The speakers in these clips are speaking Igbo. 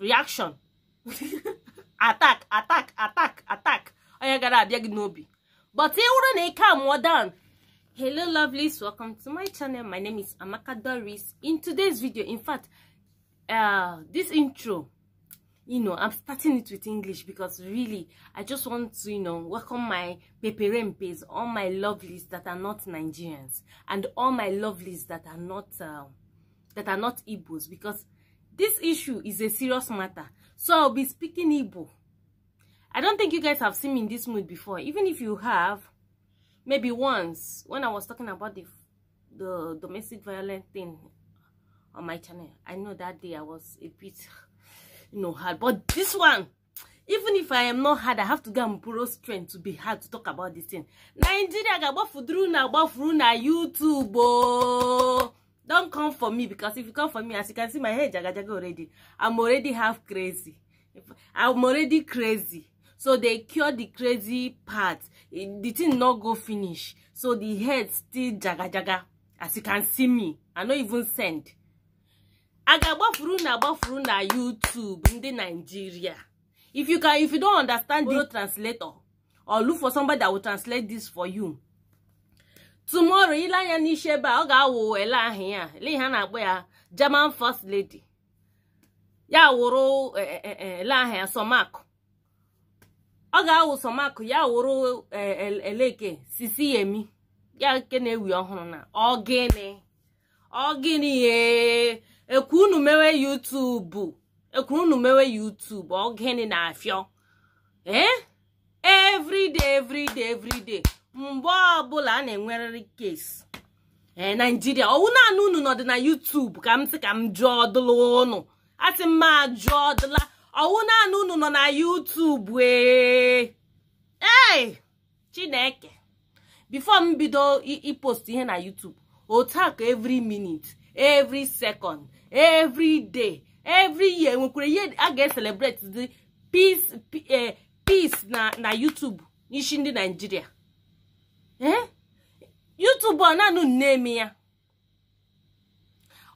reaction attack attack attack attack onye gara abịa gị n'obi but ị wụrụ na ike amụọ hello lovelies welcome to my channel my name is amaka doris in today's video in fact uh, this intro you know i'm starting it with english because really i just want to you know welcome my peperempes all my lovelies that are not nigerians and all my lovelies that are not uh, that are not igbos because this issue is a serious matter, so I'll be speaking Igbo. I don't think you guys have seen me in this mood before. Even if you have, maybe once, when I was talking about the, the domestic violence thing on my channel, I know that day I was a bit, you know, hard. But this one, even if I am not hard, I have to go and borrow strength to be hard to talk about this thing. Nigeria, gabafudru na, YouTube, oh. Don't come for me because if you come for me, as you can see, my head jaga jaga already. I'm already half crazy. I'm already crazy. So they cure the crazy part. Eh, the thing not go finish. So the head still jaga jaga. As you can see me, I not even send. I got buffuru na buffuru na YouTube in the Nigeria. If you can, if you don't understand the translator, or look for somebody that will translate this for you. tomorrow ile anya n'isi ebe a ọ ga-awụ ele ahụ ya ihe a na-akpọ ya German first lady ya wụrụ e, e, e, ele ahụ ya sọmakụ ọ ga-awụ sọmakụ ya wụrụ eleke sisi yemi ya nke na-ewi ọhụrụ na ọgịnị ọgịnị ekwu unu mewe yutubu ekwu unu mewe yutubu ọgịnị na afịọ ee everyday everyday mgbe ọbụla a na-enwerịrị kesi ee eh, naijiria ọwụ naanị unu nọdị na yutubu ka m sị ka m jụọ dụla ụnụ asị m ma jụọ dụla ọwụ naanị unu nọ na yutubu ee ee eh. chineke bifo m bido ipost ihe na yutubu otu a ka every minute every second every day every year nwekwara ihe a ga-eselebrate dị eh, peace na na yutubu n'isi ndị naijiria Eh? YouTube ọ na-anụ ya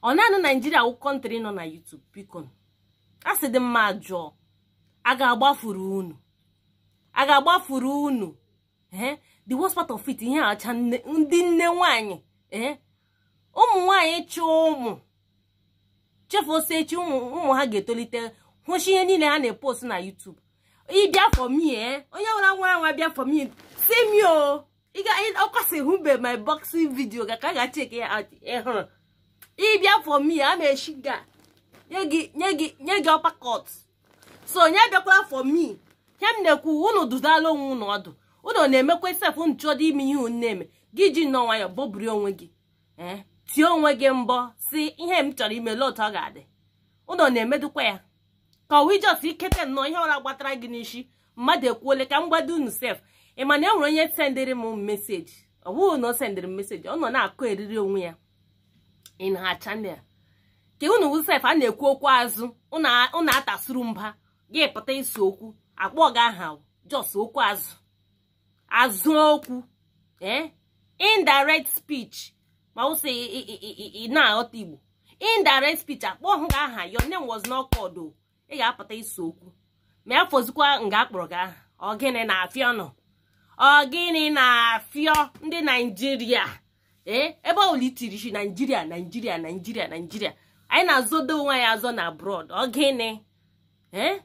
ọ na-anụ naijiria wụ kọntrị nọ na YouTube biko a sị dị mma jụọ a ga-agbafuru unu a ga-agbafuru unu eh? the worst part of it ihe acha ndị nne nwanyị eh? ụmụ nwanyị chụọ ụmụ chefu osechi ụmụ ha ga-etolite hụchi ihe niile ha na-epost na YouTube ị bịa onye ọbụla nwere anwa bịa for me si m ọkwasị hụbe my boxing video ka ka ga-achek ya ịhụrụ ịbịa for me a na-echi ga nye gị ọpakọt so onye bịakwara for me kem m na-ekwu unu dudala onwe unu ọdụ unu na-emekwa sef unu chọdọ ime ihe unu na-eme gị ji nọ nwayọ bọburi onwe gị eh, ti onwe gị mbọ si ihe m chọrọ ime otu ọ ga-adị unu na-emedukwa ya ka ọwa ijọs ikete nnọọ ihe ọra gbatara gị n'ishi mmadụ ekwuole ka m gbado unu sef ị ma e nwere onye sendịrị m meseji ọ bụghị na ọ sendịrị m meseji ọ nọ na-akụ eriri onwe ya in ha chanel ka unu wusef a na-ekwu okwu azụ unu atasuru mba gị pụta isi okwu akpọ gị aha jos okwu azụ azụ okwu ee eh? indirect speech ma wụsị ị aghọta igbo indirect speech akpọ hụ gị aha your name was not called oh. ị ga-apụta isi okwu ma ya fozikwa nga akpọrọ gị aha ọ gịnị na afịa nọ ọ gịnị na-afịọ ndị naijiria ee eh, ebe olitiri isi naijiria naijiria naijiria naijiria anyị na-azọdo onwe ya azọ na abroad ọ gịnị ee eh?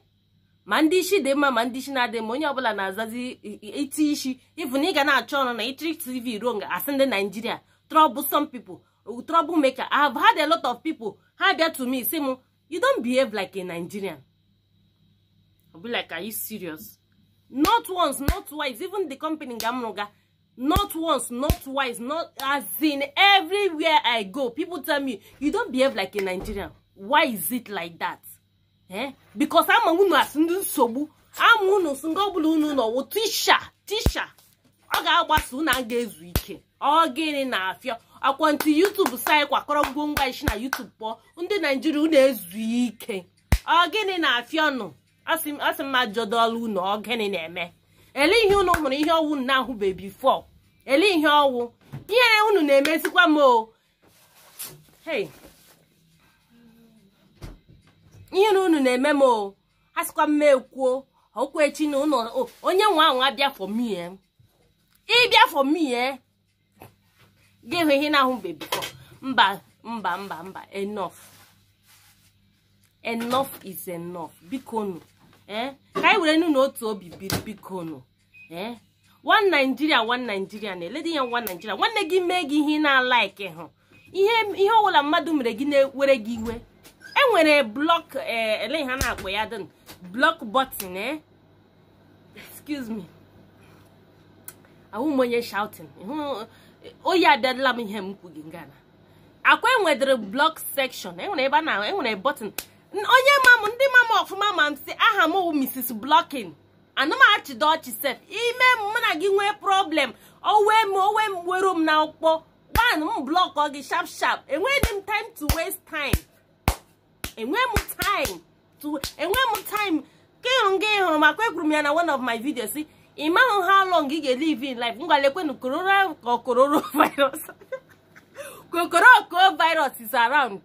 ma ndị isi dị mma ma ndị isi na-adị mma onye ọbụla na-azazi iti isi ịfụ na ị ga na-achọ ọrụ na itiri tv ruo nga asị ndị naijiria trọbụ some people trọbụ maker i ha had lot of people ha bịa to si sị m you don't behave like a nigerian i'll be like you serious not once not twice even the company ga m not once not twice not as in everywhere i go people tell me you don't behave like a nigerian why is it like that eh because ama unu asị ndị nsogbu ama unu sị nga ọbụla unu nọwụ tisha tisha ọ ga-agbasa unu a ga-ezu ike ọ gịnị na-afịa akwantị youtube sayị kwakọrọ ngwongwo isi na youtube pụọ ndị nigeria unu ezu ike ọ gịnị na-afịa no asị asị m ajọdọla unu ọgịnị na-eme ele ihe unu hụrụ ihe ọwụ na ahụbeghị bifo ele ihe ọwụ ihe unu na-emezikwa m o ihe na unu na-eme m o asịkwa m ekwuo echi na ụlọ onye nwe ahụ fọ fọmie ịbịa fọmie ga-enwe ihe na-ahụbeghị bifo mba mba mba mba enough enough is enough bikonu ee eh? ka anyị were nu na otu obi biri bikonu ee eh? one Nigeria one Nigeria na eledi ya nwa Nigeria nwanne gị mee gị ihe ị na-alaiki hụ ihe ọbụla mmadụ mere gị na-ewere gị iwe e enwere blọk eh, ele ha na-akpọ ya dịn blọk bọtin ee excuse me ahụ m onye shouting oyi adịla m ihe m kwughị ngana akwa enwedịrị blọk sekshọn enwere ebe a na enwere bọtin onye ma mam ndị mama ọfụma ma m si aha m Mrs Blocking anamachido ọchị sef ime mụ na gị nwee problem owe m owe m were m na ọkpọ gban m blọkọ gị sharp sharp enweghị m time to waste time enweghị m time to enweghị m time ka ịhụ gị ịhụrụ makwa ekwuru m ya na one of my videos ị mahụ how long ị ga-elive in life ngwalekwenu kororo virus is around.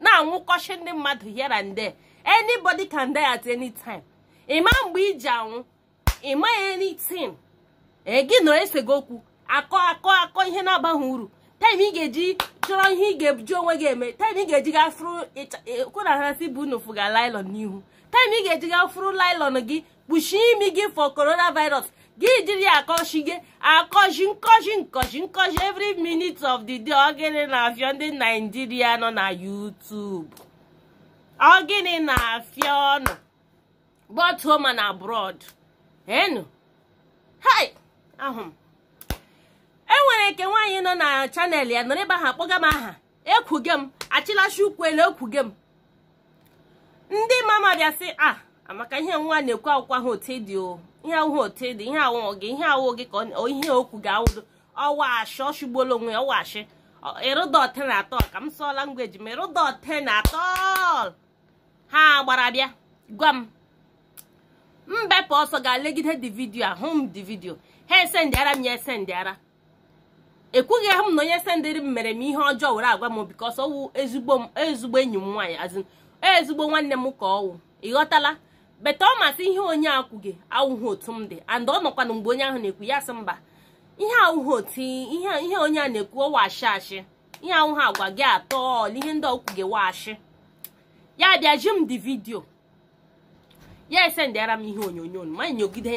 na-anwụkọchi ndị mmadụ here and there anybody can die at any time ịma mgbe iji anwụ ịma anything Egi nọ esego okwu akọ akọ akọ ihe na-abaghị uru taim ị ga-eji chọrọ ihe ị ga-eji onwe gị eme taim ị ga-eji ga e, na kwụna hasị bụ unu fụga lailon n'ihu taim ị ga-eji ga furu lailon gị kpuchie imi gị for coronavirus gị jiri akọchi gị akọchi nkọchi nkọchi nkọchi every minute of the day ọ na-afịọ ndị naijiria nọ na YouTube ọ na-afịa ọnụ but home and enu hai ahụ enwere nke nwaanyị nọ na chanel ya nọrọ ebe ahụ akpọga m aha ekwuge m achịlachi ukwuele ekwuge m ndị mama bịa sị a ah, amaka ihe nwa na-ekwu akwụkwọ ahụ otu dị o ihe awụ otu dị ihe awụọ gị ihe awụ gị ka ihe okwu ga-awụdo ọwa ashị ọ shụgbuola onwe ya ọwashi ịrụdọte na atọ ka m sụọla ngweji ma ịrụdọte na atọ ha gbara bịa gwa m mbepụ ọsọ ga-alegide dị vidio a hụ m dị vidio ha ese esendịara m ya esendịara ekwughị ahụ m na onye sendịrị m mere m ihe ọjọọ were agwa m bikọs ọwụ ezigbo enyi m nwaanyị azụ ezigbo nwanne m ka ọwụ ịghọtala beta ọ masị ihe onye akwụghị awụghị otu m dị and ọ nọkwana mgbe onye ahụ na-ekwu ya sị mba ihe awụghị otu ihe onye a na-ekwu ọwa ashị ashị ihe awụghị agwa gị atọ ọla ihe ndị ọkwụghị waashị ya bịa ji m dị vidio ya esendịara m ihe onyonyo ma nyogide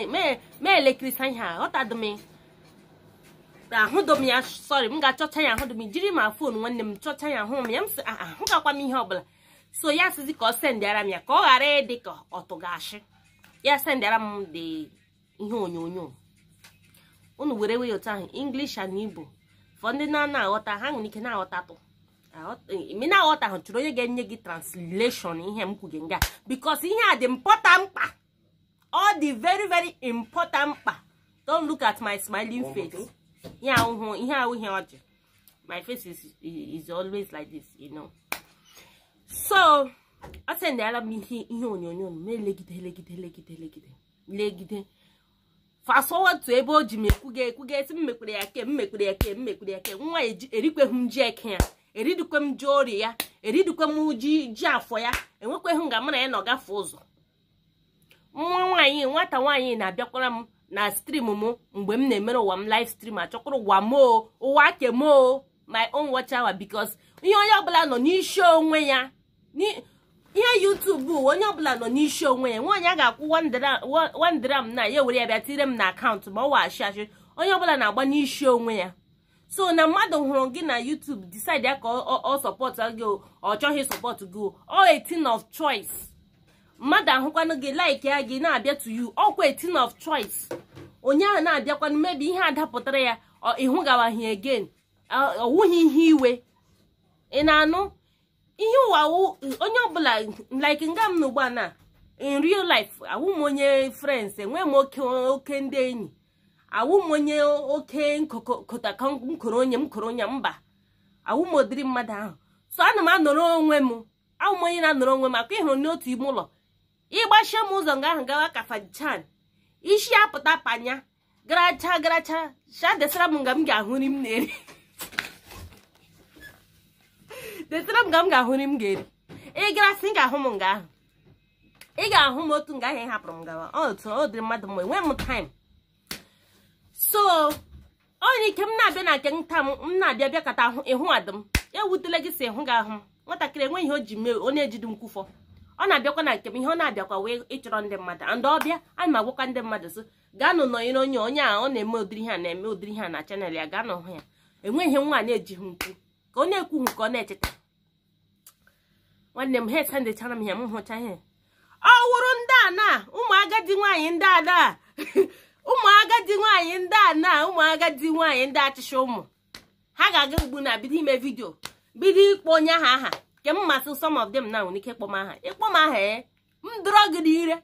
ma elekirisa ihe m ahụdo ya sọrị m ga-achọcha ya ahụdom jiri ma fon nwanne m chọcha ya ahụ m ya m sị ah, ah, m ihe ọbụla so ya sizi ka ọ sendịara m ya ka ọ ghara ịdị ka ọtụgashị ya sendịara m dị ihe onyonyo unu were wee otu ahụ english and igbo fọ ndị na na-aghọta ha nwere ike na aghọta tụ ị na-aghọta ahụ chụrụ onye ga-enye gị translation ihe m kwuge nga because ihe a dị important mkpa ọ dị very very important mkpa don look at my smiling face ihe ahụhụ ihe ahụ ihe ọjị my face is, is always like this you know. so a sị na m ihe ihe onyonyo na-elegide elegide elegide elegide legide fast ebe o ji m ekwuga esi m mekwere ya ke m mekwere ya ke m ya ke nwa e erikweghị m ji eke ya eridikwe m ji ori ya eridikwe m ji ji afọ ya enwekweghị nga mụ na ya na ọ gafe ụzọ nwa nwaanyị nwata nwaanyị na-abịakwara m na stream m mgbe m na-emere ụwa m live stream achọkwara ụwa moo ụwa kemoo my own watch hour because ihe onye ọbụla nọ n'isi onwe ya ihe yutubu onye ọbụla nọ n'isi onwe ya nwaanyị a ga-akwụ wandram na ya were ya bịa tire m na akaụntụ ma ọ waghachi achị onye ọbụla na-agba n'isi onwe ya so na mmadụ hụrụ gị na YouTube decide ya ka ọ sọpọtụ gị ọ chọghị sọpọt gị ọ 18 of choice mmadụ ahụkwanụ gị like ya gị na-abịa to you ọkwa 18 of choice onye ahụ na-abịakwanụ mebi ihe adapụtara ya ịhụgawaghị again ọwụghị ihe iwe ị na-anụ ihe ụwa onye ọbụla like nga m n'ugbu a na in real life awụ m onye friends enwee m oke ndị enyi awụ m onye oke nkoro onye m koro onye mba awụ m mmadụ ahụ so ana m anọrọ onwe m awụ m onye na-anọrọ onwe m akwa ịhụrụ n'otu ime ụlọ ịgbachie m ụzọ nga ahụ gawa kafachan isi apụta panya garacha garacha sha m nga m ga-ahụ nri m na-eri detara m ga m ga-ahụ nri m ga-eri ị gara sị ga-ahụ m nga ahụ ị ga-ahụ m otu nga ahụ ị hapụrụ m gawa otu ọ dịrị mmadụ mgbe nwee m taim so onye ike m na-abịa na nke nta m m na-abịa bịakọta ịhụ adị m ewutela gị si ịhụ gị ahụ m nwatakịrị enweghị ihe o ji mee onye ejidi nkwụfọ ọ na-abịakwa na nke m ihe ọ na-abịakwa wee ịchọrọ ndị mmadụ andị ọbịa ana m agwakwa ndị mmadụ so gaanụ nọnyere onye onye a ọ na-eme udiri ihe a na-eme ụdịrị ihe a na chanel ya gaa hụ ya enweghị nwa na-ejighị nkwu ka ọ na ka ọ na-echeta nwanne m ha esendechara m ya m hụcha ihe ọ wụrụ ndị a na ụmụ agadi nwaanyị ndị a na ụmụ agadi nwaanyị ndị a na agadi nwaanyị ndị achịcha ụmụ ha ga-aga ugbu na bido ime vidio bido ịkpọ onye aha aha nke m masị sọm of them na nwere ike ịkpọ eh? m aha ịkpọ m aha e m dọrọ gị n'ire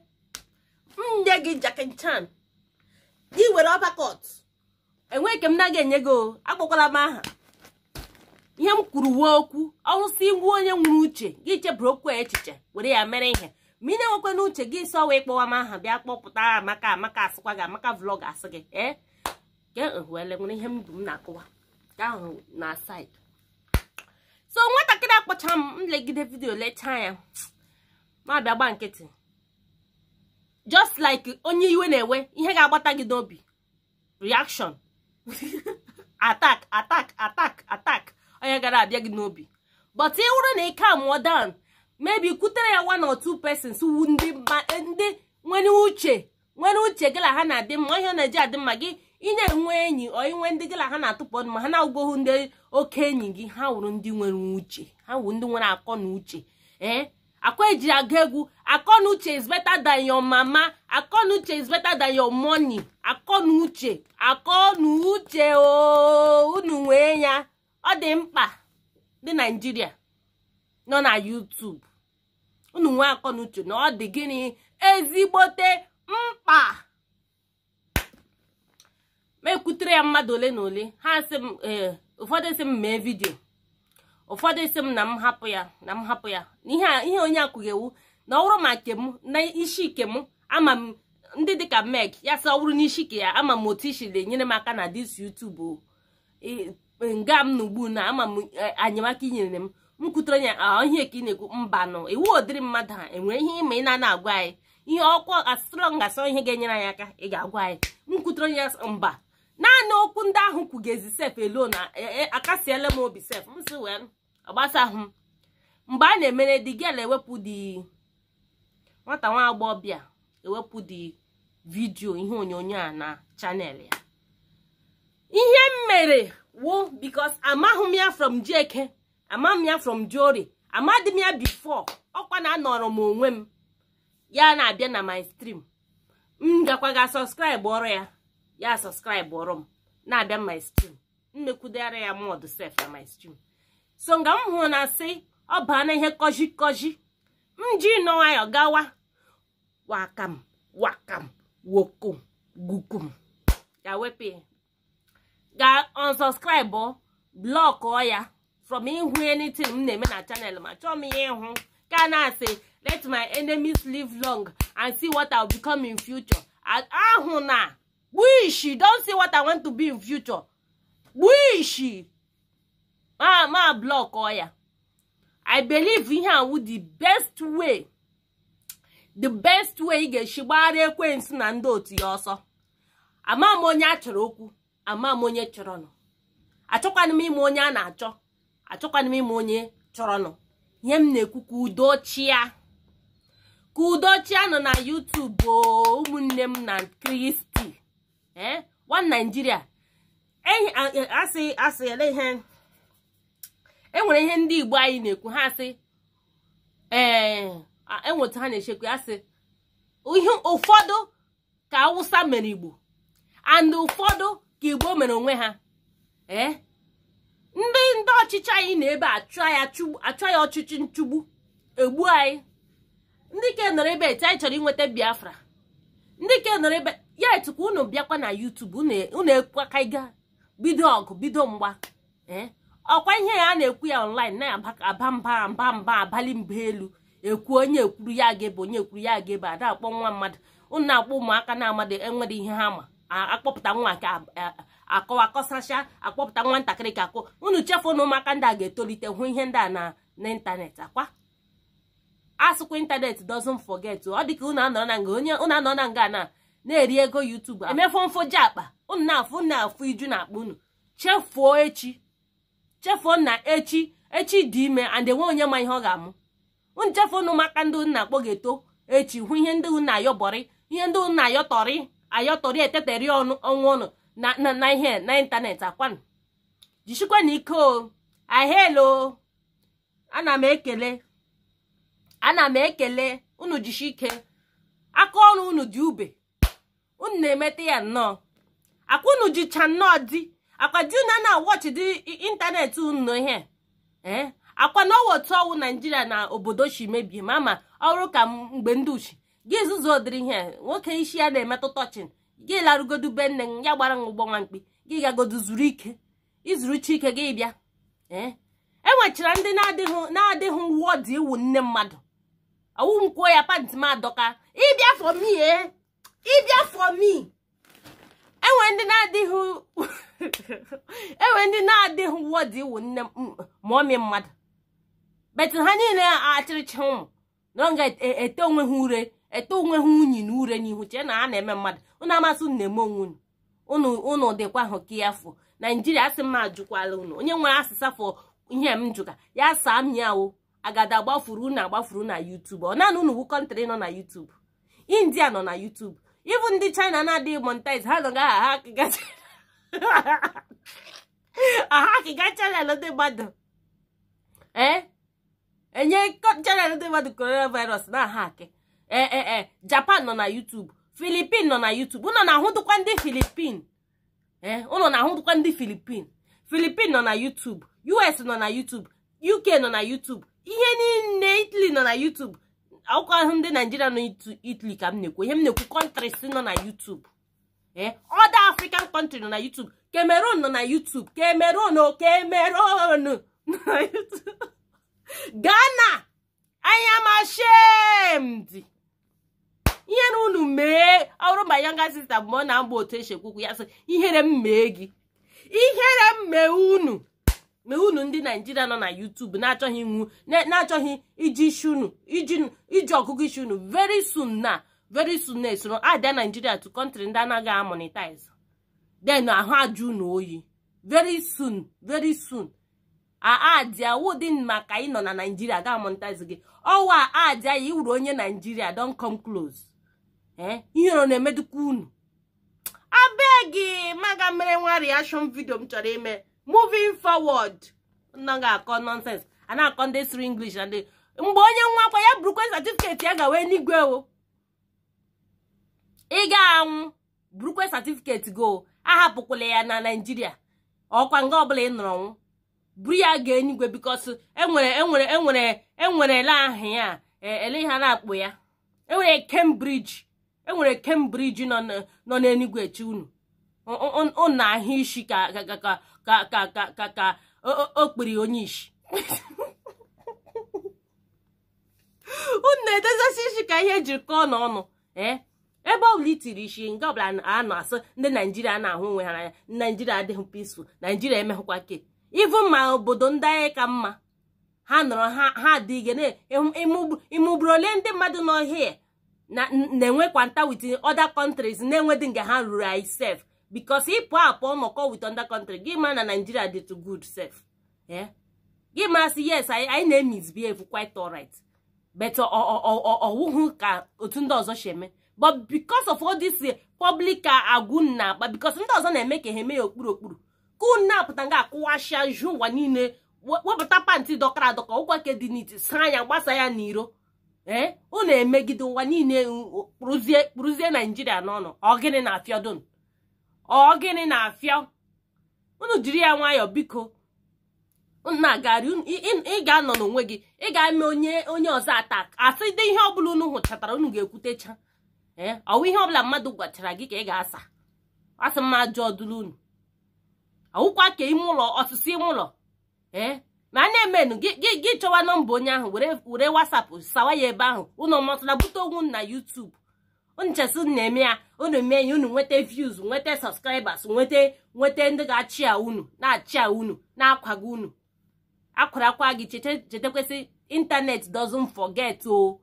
m nye gị jakin chan gị were ọbakọt enweghị ke m na-aga enye gị o akpọkwala m aha ihe m kwuru wee okwu ọwụsị ngwa onye nwere uche gị cheburu okwu echiche were ya mere ihe ma ị na-enwekwa n'uche gị so wee kpọwa m aha bịa kpọpụta amaka amaka asịkwa gị amaka vlọg asị gị ee eh? wele nwere ihe m m na-akụwa ahụ na said so nwatakịrị akpọcha m nlegide vidiyo lechaa ya ma bịa gba nkịtị just like onye iwe na-ewe ihe ga-agbata gị n'obi reaction atak atak atak atak. onye gara abịa gị n'obi but ị wụrụ na ike amụọ down mebi kutere ya one or two persons ndị nwere uche nwere uche gị na ha na-adị mma ihe na-eji adị mma gị inye na-enwe enyi ọ inwe ndị gị na ha na-atụpọ ma ha na-agụghị ndị oke enyi gị ha wụrụ ndị nwere uche ha wụrụ ndị nwere akọ na uche ee eh? akọ eji aga egwu akọ na uche is better than your mama akọ na uche is better than your money akọ na uche akọ na uche ooo oh, unu nwee ya ọ dị mkpa ndị naijiria nọ na YouTube unu nwe akọ na uche na ọ dị gịnị ezigbote mkpa ma ekwutere ya mmadụ ole na ole ha sị m eh, ụfọdụ sị m mee vidio ụfọdụ si m na m hapụ ya na m hapụ ya na ihe onye akwụghị na ọ bụrụ ma nke na ishi ke m ama m ndị dịka meg ya sị ọ bụrụ n'isi ke ya ama m otu isi na-enyere m aka na dis YouTube nga m na ugbu na ama m anyamaka e, inyere m m kwutere ya ihe ka ị na-ekwu mba nọ iwu ụdịrị mmadụ ha enwere ihe ịma ị na-ana agwa anyị ihe ọkwa asịrọ ngasịrọ ihe ga-enyere anyị aka ị ga-agwa anyị m kwutere ya mba naanị okwu ndị ahụ kwugezi sef elo na e, e, akasiela m obi sef m si wee agbasa ahụ m mgbe a na-emere di gel ewepụ di nwata nwa agbọghọbịa ewepụ di vidiyo ihe onyonyo a na chanel ya ihe m mere wo because amaghị m ya from Jeke amaghị m ya from Jori amadị m ya bifo ọkwa na anọrọ m onwe m ya na-abịa na my stream m gakwa ga subscribe ọrụ ya ya subscribe ọrụ m na-abịa my stream ya mod sef na my stream so nga m hụrụ na sị ọ baa na ihe kọji kọji m ji nọ gawa wakam wakam wokom gukum ya wepụ ya ga unsubscribe blọkụọ ya from ihu anything m na-eme na chanel ma chọọ m ihe ịhụ ka na-asị let my enemies live long and see what I'll become in future ahụ na wish don't see what I want to be in future wish ma ma blọkụọ ya I believe ihe a the best way the best way ị ga-esi gbara ekwensu na ndị otu ya ọsọ ama m onye a chọrọ okwu ama m onye chọrọnụ achọkwana m ime onye a na-achọ achọkwana m ime onye chọrọnụ ihe m na-ekwu ka udo chia ka nọ na YouTube ụmụnne m na kristi ee eh? one Nigeria e, asị asị ihe e nwere ihe ndị igbo anyị na-ekwu ha asị enweta eh, e ha na ihe ụfọdụ ka awụsa mere igbo and ụfọdụ ka igbo mere onwe ha ee eh? ndị ndị ọchịchị anyị na-ebe achọ ya ọchịchị nchụgbu egbu anyị ndị ke nọrọ ebe eti anyị chọrọ inweta biafra ndị ke nọrọ ebe ya etukwa unu bịakwa na yutubu unu e, ịga bido ọgụ bido mgba ee eh? ọkwa ihe ya a na-ekwu ya online na-aba mba mba mba abalị mba elu ekwu onye ekwuru ya ga-ebe onye ekwuru ya ga-ebe ada akpọ nwa mmadụ ụnụ na-akpọ ụmụaka na-amadị enwere ihe ha ma akpọpụta nwa nke eh, akọwa akọsacha akpọpụta nwatakịrị ka akụ unu chefuo na ụmụaka ndị a ga-etolite hụ ihe ndị a na n'ịntanetị akwa asụkwa ịntanetị doesn't forget ọ dịka unu anọ na nga onye unu anọ na nga na na-eri ego YouTube emefu ji akpa unu na-afụ na-afụ iju na akpa unu chefuo echi chefuo na echi echi dị ime and enwe onye ma ihe ọ ga-amụ unu chefuo na ụmụaka ndị unu na-akpọ ga-eto echi hụ ihe ndị unu na-ayọbọrị ihe ndị unu na-ayọtọrị ayọtọri eteteri ọnụ ọnwa ọnụ na ihe na ịntanetị akwanụ jisikwa na ike o ahelo ana m ekele ana m ekele unu jisi ike aka ọrụ unu dị ube unu na-emete ya nnọọ akwa unu jicha nnọọ dị akwa di na na wọchị dị ịntanetị unu ihe ee akwa na otu ọwụ naijiria na obodo chi mebie ma ma ọrụ ka mgbe ndị uchi gị nzuzo dịrị ihe nwoke isi ya na emetụta tọchin gị larụgodu be nne m ya gbara m ụgbọ nwa mkpi gị gagodu zuru ike izuru ike gị bịa e enwechara ndị na-adịghị uwe dị iwu nne mmadụ awụ nkwuo ya pant m adọka ịbịa for me ee ịbịa for me enwe ndị na-adịghị enwe ndị na-adịghị uwe dị iwu nne ma ọ mie mmadụ betu ha niile achịrịcha ụmụ na ọ e-, ga-ete e-, onwe ha ure ete onwe ha unyi na ure n'ihu chee na a na-eme mmadụ unu amasị unu na-eme onwe unu ụnụ dịkwa ahụ ka ya fụ naijiria asị m ajụkwala unu onye nwere asịsa fọ ihe m jụka ya saa m ya o agada gbafuru unu agbafuru na yutub ọ naanị unu bụ kọntrị nọ na yutub india nọ na yutub ịbụ ndị china na-adịghị monetize ha nọ ha akịga akịga chanel ndị mmadụ ee enye chanel ndị mmadụ coronavirus na aha akị ee japan nọ na youtube filipin nọ na youtube ụnọ na-ahụdụkwa ndị filipin ee ụnọ na-ahụdụkwa ndị filipin filipin nọ na youtube us nọ na youtube uk nọ na youtube ihe niile italy nọ na youtube akwụkwọ ahụ ndị naijiria nọ italy ka m na-ekwu ihe m na-ekwu kọntris nọ na youtube ee ọda african kọntrị nọ na youtube cameroon nọ na youtube cameroon cameroon nọ na youtube ghana i am ashamed ihere unu mee ọrụ ma yanga sista bụ ma ọ na-agba otu esi ekwukwu ya sị ihere m mee gị ihere m mee unu mee unu ndị naijiria nọ na YouTube na-achọghị nwu na-achọghị iji isi unu iji ọgụgụ isi unu very soon na veri soon na esoro ada naijiria to country ndị anaghị amonetize then ahụ ajụ unu oyi veri soon very soon aadia wudin maka ịnọ na naijiria ga amonetize gị ọwa aadia ya iwuru onye naijiria don come close Eh? ihere na-emedukwa unu abeg maga mere nwa reaction video m chọrọ ime moving forward nọ ga-akọ nonsense a na-akọ ndị siri inglish na ndị mgbe onye nwa akwa ya burukwe satifiketi ya gawa eluigwe o ị ga-anwụ burukwe certificate go ahapụkwala ya na Naịjirịa ọkwa nga ọbụla ị nọrọ nwụ buru ya gaa eluigwe because enwere enwere enwere enwerela ya e, ele ha na-akpụ ya enwere Cambridge enwere Cambridge nọ n'Enugu echi unu na ahụ isi ka ka o kpiri onye isi unu na-edezasi isi ka ihe jiri kọọ n'ọnụ eh? ebe ọ ọbụla itiri isi nga ọbụla a na-asụ ndị naijiria na-ahụ onwe ha anya naijiria adịghị peaceful naijiria emeghụkwa ke ivu ma obodo ndị anyị ka mma ha nọrọ ha adịghị ịmụgburu ole ndị mmadụ nọ n'ọhịa na-enwekwa nta wit other countries na-enwedị nga ha ruru anyị sef because ịpụ apụ nọkọ with other country gị ma na Nigeria dị to good sef eh? gị ma sị yes anyị na-emisbehave quite alright but ọwụhụ ka otu ndị ọzọ si eme but because of all this eh, public ah, agụ na-akpa because ndị ọzọ na-eme ka ha eme ya okpuru okpuru ka na-apụta nga akụwashia ju ụwa niile wepụta pantị dọkara adọka ụkwake dị n'iti saa ya gbasa ya n'iro ee eh? unu emegide ụwa niile kpụrụzie kpụrụzie naijiria n'ọnụ ọgịnị na-afịa dun ọgịnị na-afịa unu jiri ya nwayọọ biko na ị ga-anọ n'onwe gị ị ga-eme onye onye ọzọ ata asị dị ihe ọbụla unu hụchatara unu ga-ekwutecha ee eh? ọwụ ihe ọbụla mmadụ gwachara gị ka ị ga-asa asị mma ajọ ọdụlụ unu ọwụkwa ka ime ụlọ osisi ime ụlọ ee eh? ma na-emenu gị chọwa nọmba onye ahụ were wasapụ sawa ya ebe ahụ ụnụ matụla bute onwu na yutubu nchesi na-eme ya unu mee ya unu nweta views nweta subscribers nweta nweta ndị ga-achị a unu na-achị a unu na-akwago unu akwara akwa gị chetekwesị internet doesn't forget o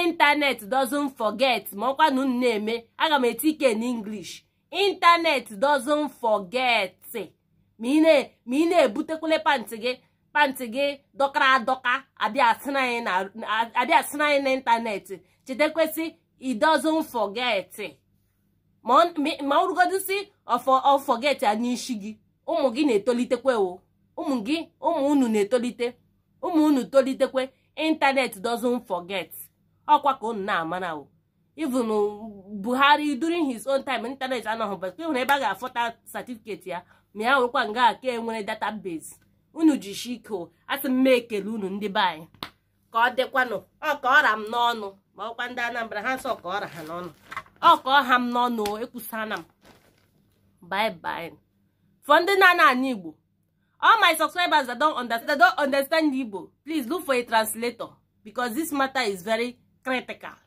internet doesn't forget ma ọkwa na unu na-eme aga m eti ike n'inglish intanet internet doesn't forget ma ị na-ebutekwule pantị gị pantị gị dọkara adọka abịa asị anyị n'ịntanetị chetekwesị it doesn't forget ma ọ rugodisi ọfọgeti a n'isi gị ụmụ gị na-etolitekwe o ụmụ gị ụmụ unu na-etolite ụmụ unu tolitekwe ịntanetị doesn't fọgeti ọkwa ka unu na-amara o even Buhari during his own time ịntanetị anọghị bụrụ ebe a ga-afọta satifiketi ya ma ya nwekwa nga ka enwere database unu jishi ike asị m mee ekele unu ndị be anyị ka ọ dịkwanụ ọ ka ọra m n'ọnụ ma ọkwa ndị Anambra ha nsọ ka ọra ha n'ọnụ ọ ka ọha m n'ọnụ ekwusana m bye bye for ndị na-ana ana Igbo all my subscribers that don't understand, don't understand Igbo please look for a translator because this matter is very critical